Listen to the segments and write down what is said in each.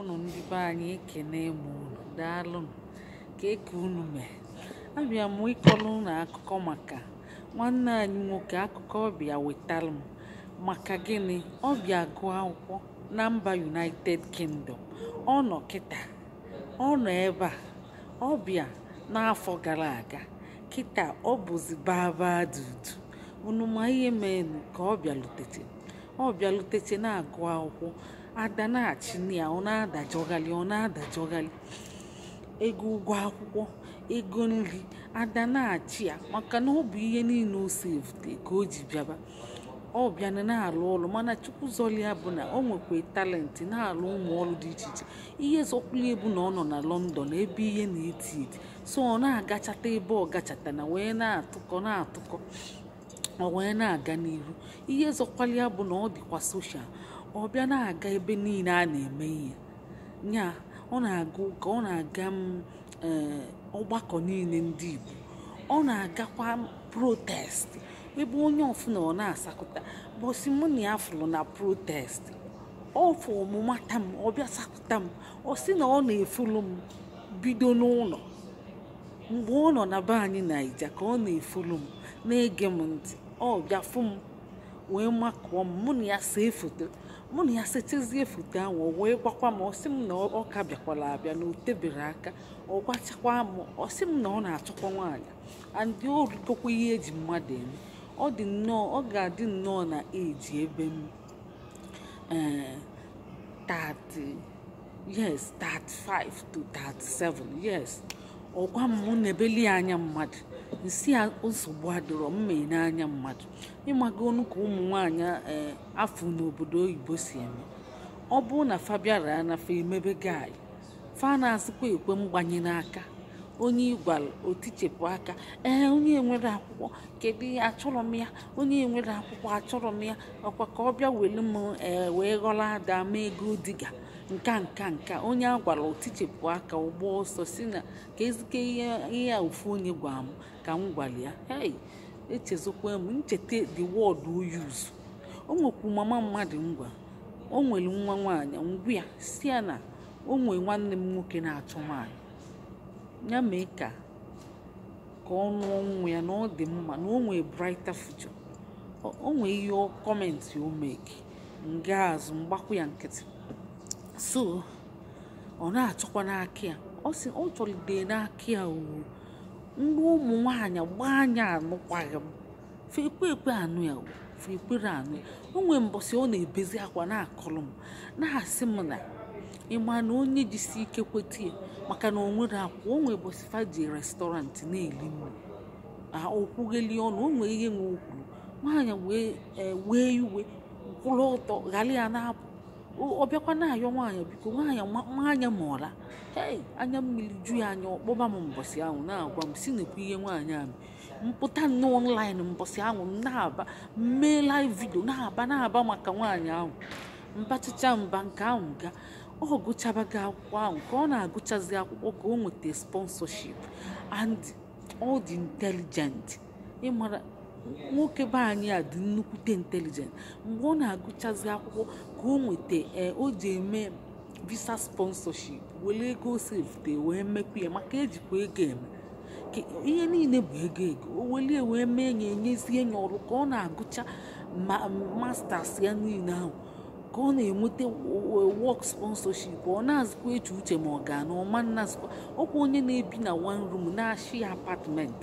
ụnụ ndị be anyị ekene m unu daalụnụ ka eke unu mee abịa m ịkọrọ unu akụkọ maka nwanne anyị nwoke akụkọ ọbịa wetalụ m maka gịnị ọbịa gụọ akwụkwọ na mba united kingdom ọ nọ kịta ọ nọ ebe a ọbịa n'afọ gara aga kịta ọ bụzi baba dudu unu ma ihe menu ka ọ bịaluteche ọ bịaluteche na-agụ akwụkwọ adanachina ọ na-adajọghali ọ na-adajọghali ego ụgwọ akwụkwọ ego nri adanachi ya maka na ọ bụ ihe niile o sefte ka o ji bịaba ọ bịana na-alụ ụlọ mana chukwuzọlia bụ na o nwekwa talenti na-alụ ụmụ ọrụ dị iche iche ihe zọkwulie bụ na ọ nọ na lọndọn ebe ihe na-eti eti so ọ na-agachata ebe ọ na wee na-atụkọ na-atụkọ ọ wee na-aga n'ihu ihe zọkwalia bụ na ọ dịkwa soshal ọ bịa na-aga ebe niile a na-eme ihe nya ọ na-aga ọ na-aga mm, eh, ọgbakọ niile ndị Igbo ọ na-agakwa protest ebe onye ọfụna ọ na-asakụta bọsi mụ na ya fụrụ na protest ọfụ ọmụmata m ọ bịa sakụta m ọ sị na ọ na-efulu m bido n'ụlọ mgbe ọ nọ na be anyị naija ka ọ na-efulu m na-ege m ntị ọ bịa fụ m wee makụọ m mụ na ya see foto mụ na ya setezie foto ahụ o wee gwakwa m ọsị m na ọka bịakwara abịa na o tebere aka ọ gwachakwa m ọsị m na ọ na-achọkwa nwaanyị andị o ihe eji mmadụ eme ọ dị nnọọ ọ ga-adị nnọọ na eji ebe m 30 eh, yes 35 to 37 yes ọgwa m mụ na ebeli anya mmadụ nsi nsogbu adịrọ mma n'anya mmadụ ịmago ọnụ ka ụmụ nwaanyị eh, afọ n'obodo oyibo si eme ọ bụrụ na fabiara na emebe gai fa na-asịkwa ekwe mgbanye n'aka onye ịgwara otichepụ aka ee eh, onye nwere akwụkwọ kedu ihe achọrọ m ya onye nwere akwụkwọ achọrọ m ya ọkwa ka ọ bịa welu m eh, wee ghọrọ ada ma ego diga nka nka nka onye a gwara otichepụ aka ụgbọ ọsọ si na ka ezike ihe a ofu onye gwara m ka m gwara ya hei echezokwa m ncheta the world o use o nwekwu mama mmadụ ngwa o nwere nwa nwaanyị ngwa ya si ya na o nwee nwanne m nwoke na-achọ nwaanyị ya mee ka ka ọ nụọ nwa ya na ọ dị mma na o nwee brighter future o nwee ihe kọmentị o nga azụ mgbakwu ya nkịtị so ọ na achọkwa n'aka ya ọ sị ọ chọlide n'aka ya o ndị ụmụ nwanyị gbaa anya anụkwaghị m fekwe ekwe anụ ya o fekwere anụ ya o nwee mbọsị ọ na-ebezi akwa na-akọrọ m na-asị m na ịma na onye jisi ike kweta ya maka na o nwere akwa o nwee bọsị faji restọrantị na-eli nri okwugheli ọnụ o nwee ihe nwe okwuru nwaanyị wee e, wee iwe kwụrụ ọtọ ghara ya na-apụ ọbịakwa na-ayọ nwaanyị biko nwaanyị nwaanyị mụọla hei anya mmiri ju ya anya ọkpọba m mbọsị ahụ na-agwa m si nekwa ihe nwaanyị ahụ mpụta n'ọnlaịn mbọsị ahụ na-aba mee live vidio na-aba na-aba maka nwaanyị ahụ mbachicha mba nke ahụ ga ọ gụchabaghị akwụkwọ ahụ ka ọ na-agụchazi akwụkwọ ka o nweta sponsorship and ọ dị intelligent ịmara nwoke be anyị a dị nnukwute intelijent mgbe ọ na-agụchazi akwụkwọ ka o nweta e, o ji eme visa sponsorship were ego sefte wee mekwa ya maka ejikwa ego eme ihe niile bụ ego ego o welie wee mee ya enyezie ya ọrụ ka ọ na-agụcha masters ya niile ahụ ka ọ na-enweta work sponsorship ọ na-azụkwa eche uche ma ọ ga na ọma nnazụkwa ọkwa onye na-ebi na one room na-ashi apartment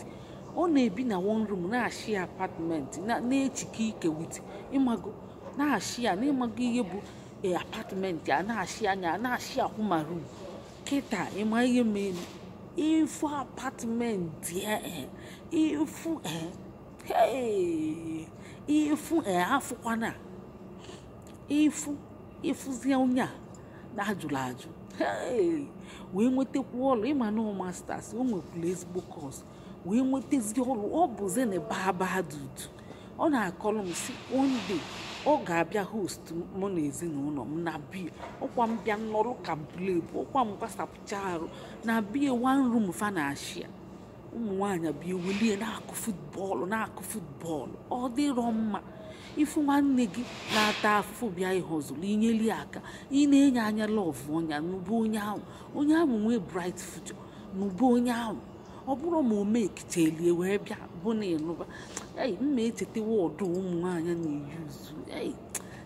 ọ na-ebi na one room na-achị apartment na-echike ike wit ịmago na-achị ya n'ịmago ihe bụ eh, apartment ya na-achị anya na-achị akwụ ma room kịta ịma ihe mere ifu apartment ifu eh, eh, afụkwana ifu ịfụzie onye a na-ajụrụ ajụ wee nwetakwu ọlụ ịma na masters o nwekwuru ezigbo kọọsụ wee nwetazie ọrụ ọ bụzi na baba dudu ọ na-akọrọ m si one day ọ ga-abịa host mụ na ezinụlọ m na bie ọkwa m bịa nọrọ ka blebu ọkwa m gbasapụcha arụ na bie wan room fa na ashia ụmụ nwaanyị bịa welie na-akụ futbọọlụ na-akụ futbọọlụ ọ dịrọ mma ifu nwanne gị na-ata afụfụ bịa ịhọzụlụ inyeli aka ị na-enye anya lọv ọnya n'ụbụ onye ahụ onye ahụ nwee bright future n'ụbụ onye ahụ ọ bụrụ ma omeketelie e wee bịa bụ na ịnụba ei mma echetewa wọdụ ụmụ nwaanyị na-eyuzu ei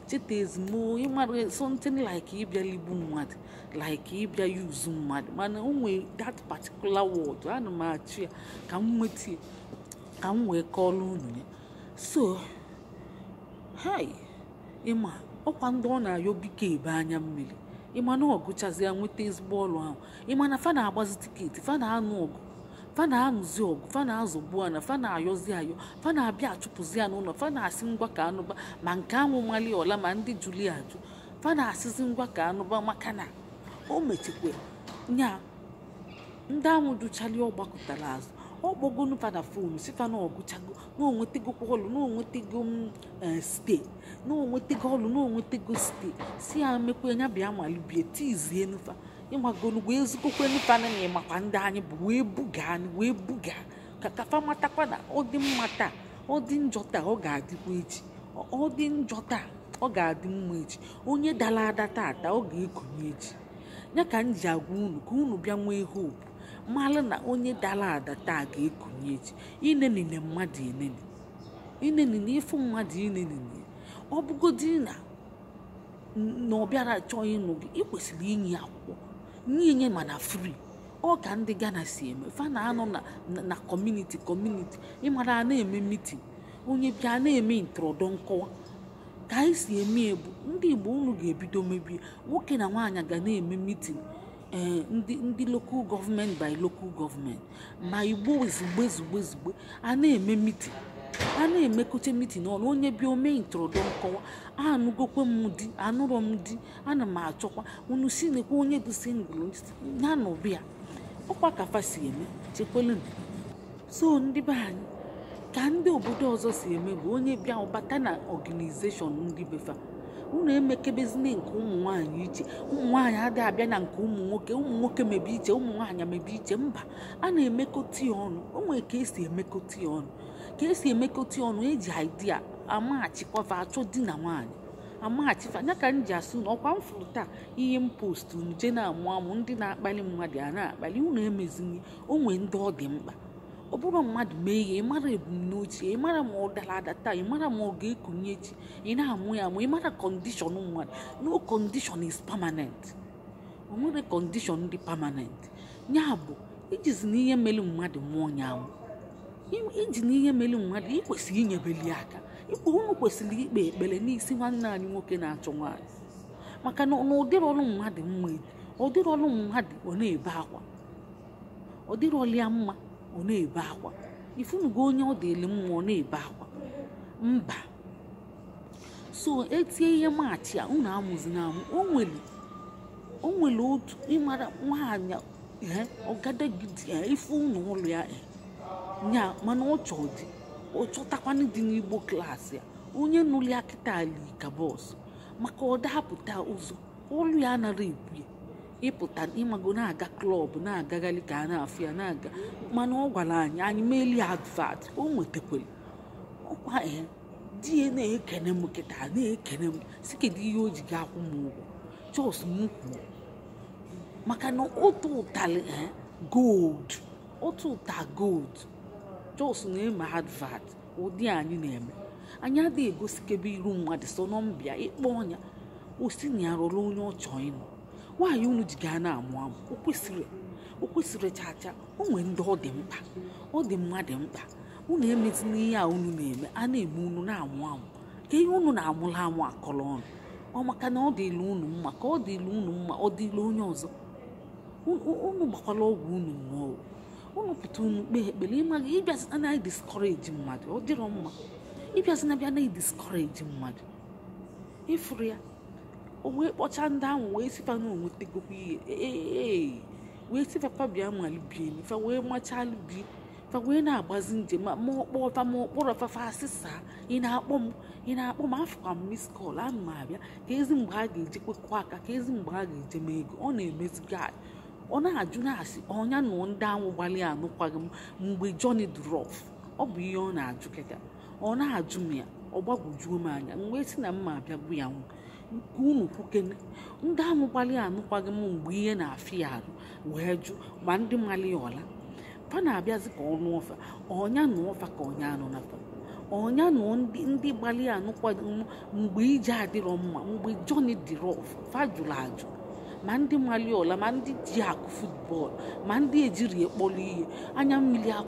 cheta ezimo ịmara something like ịbịa ligbu mmadụ like ịbịa yuzu mmadụ mana o nwee that particular word ana m achụ ya ka m nweta ka m wee kọọrọ unu ya so hei ịma ọkwa ndị ọ na-ayọbike ebe anya mmiri ịma na ọgụchazi ya nweta ezigbo ọrụ ahụ ịma na fa na-agbazi tiketi fa na-anụ ọgụ fa na ọgụ fa na-azụgbu ana fa na-ayọzi ayọ fa na-abịa achụpụzi ya n'ụlọ fa na-asị ngwa ka anụba ma nke anwụ mali ọla ma ndị juli ajụ fa na-asịzi ngwa ka anụba maka na o mechikwe nya ndị anwụ duchali ọ gbakọtara azụ ọ kpọgonu fa na fonu si fa na ọgụchago na onwetego ọlụ na onwetego mm, e, ste na ọlụ na ste si ya mekwe nya bịa malibie tizienu nufa. ịmagolugwu ezigokwe nụtana na ịmakwa ndị anyị bụ wee buga wee buga ka kafa matakwa na ọ dị mma taa ọ dị njọ taa ọ ga-adịkwa echi ọ dị njọ taa ọ ga-adị mma echi onye dara ada tata ọ ga-ekonye echi ya ka m ji agwa unu ka unu bịa nwee hope mara na onye dara ada taa ga-ekonye echi inenine mmadụ enene inenine ịfụ mmadụ inenine ọ bụgodị na na ọ bịara chọọ ịnụ gị ị kwesịrị inye akwụkwọ niile mana free ọ ka ndị Ghana si eme fa na-anọ na kọmuniti kọmuniti ịmara a na-eme mitin onye bịa na-eme ntụrọdọ nkọwa ka anyị si eme ebu ndị Igbo unu ga-ebido mebie nwoke na nwaanyị ga na-eme miti ee eh, ndị ndị lokal gọọmenti by lokal gọọmenti ma Igbo ozugbo ozugbo ezigbo a na-eme mitin a na-emekọta mitin ọnụ onye bịa ome ntụrụndụ nkọwa anụgokwe m di anụrọ m di ana m achọkwa unu si nekwa onye bụ ngwụrụ ya na ọbịa ọkwa kafa si eme chekwelu so ndị be anyị ka ndị obodo ọzọ si eme bụ onye bịa ọbata na ọganizeshọn ndị befa unu emekebezina nke ụmụ nwaanyị iche ụmụ nwaanyị adịghị abịa na nke ụmụ nwoke ụmụ nwoke mebe iche ụmụ mebe iche mba a na-emekọta ya ọnụ o ka esi emekọta ya ọnụ ka esi emekọta ọnụ eji idea amaghachikwa achọ di na nwaanyị amaghachifa ya ka m ji asụ na ọkwa m taa ihe m postu nje na-amụ amụ ndị na-akpali mmadụ a na-akpali unu emezinye onwe ndị ọ dị mkpa ọ bụrụ mmadụ mee ihe ịmara ebumnuche ịmara ma ọ dara ada taa ịmara ma ọ ga-ekunye echi ị na-amụ ya amụ ịmara kọndishọn mmadụ no kọndishọn is pamanent o nwere kọndishọn dị pamanent ya bụ ijizi e na ihe mere mmadụ mmụọ ya anwụ iji na ihe mere mmadụ ikwesịrị inyebeli aka ikpe unu kwesịrị ikpe ekpere n'isi nwanne anyị nwoke na-achọ nwaanyị maka na ụdịrị ọrụ mmadụ mma ụdịrị ọrụ mmadụ ọ na-ebe akwa ụdịrị ọrụ mma ọ na-ebe akwa ifunugo onye ọ dịrị mma ọ na-ebe akwa mba so etie ihe maachị a unu amụzi na amụ o nwere o nwere otu ịmara nwaanyị eh, ọgadagidi eh, ife ụnụ ụlọ ya ee eh, nya mana ọchọ dị ọchọtakwanụ dị n'igbo klaasị ya onye nụli akịta ali ka bọs maka ọ dapụta ụzọ olu ya anara ebu ya ịpụta ịmago na-aga klọb na-agagharị ka a na-afụ ya na-aga mana ọ gwara anyị anyị meli advat o nwetakwara ọkwa ya eh, di ya na-ekene m kịta na-ekene m si kedu ihe o ji ga akwụ m ụgwọ chọs m maka na otu ụtalị eh, gold otu ụta gold jos na ịma advat ụdị anyị na-eme anyị adịghị egosikebe iru mmadụ so nọmbịa ịkpọ ọnya osi na ya rụrụ onye ọchọ ịnụ nwaanyị unu ji gaa na-amụ amụ o kwesịrị o kwesịrị chacha o nwere ndị ọ dị mkpa ọ dị mmadụ mkpa unu emezi n'ihe a unu na-eme a na eme unu na-amụ amụ ka ihe unu na-amụla amụ akọrọ ọnụ ọ maka na ọ dịla unu mma ka ọ dịla unu mma ọ dịla onye ọzọ unu gbakwala ọgwụ unu nnọọ unu pụta unu kpee ekpere ịmaghị ịbịazi anaghị diskọreji mmadụ ọ dịrọ mma ịbịazi bịa anaghị diskọreji mmadụ ịfụrụ ya o wee kpọcha ndị ahụ wee sifa na onwetegokwa ihe ee wee sifapa bịa malibie fa wee machalubie fa wee na-agbazi njem ma ọkpọfa ma ọkpọrọ fa asịsa ị na-akpọ m ị na-akpọ m afụkwa m mis kọl m abịa ka ezi mgbe a ga-eji kwekọ aka ka ezi mgbe a ga-eje m ego ọ na-emezigo anyị ọ na-ajụ na-asị ọnya na ndị anwụ gbalịa anụkwaghị m mgbe Johnny Drọf ọ bụ ihe ọ na-ajụ kịta ọ na-ajụ m ya ọ gbagwojuo m anya mgbe si na mma abịa abịagbu ya nwụ nke unu kwukene ndị ahụ gbalịa anụkwaghị m mgbe ihe na afị ya arụ wee jụ ma ndị mali ya ọla fa na-abịazi ka ọnụ ọfa ọnya nụ ọfa ka ọnya anụ nafa ọnya nụ ndị gbalịa anụkwaghị m mgbe ije adịrọ mma mgbe Johnny Droff fa jụrụ ajụ ma ndị ọla ma ndị ji akụ futbọọlụ ma ndị ejiri ekpolu ihe anya mmiri akụ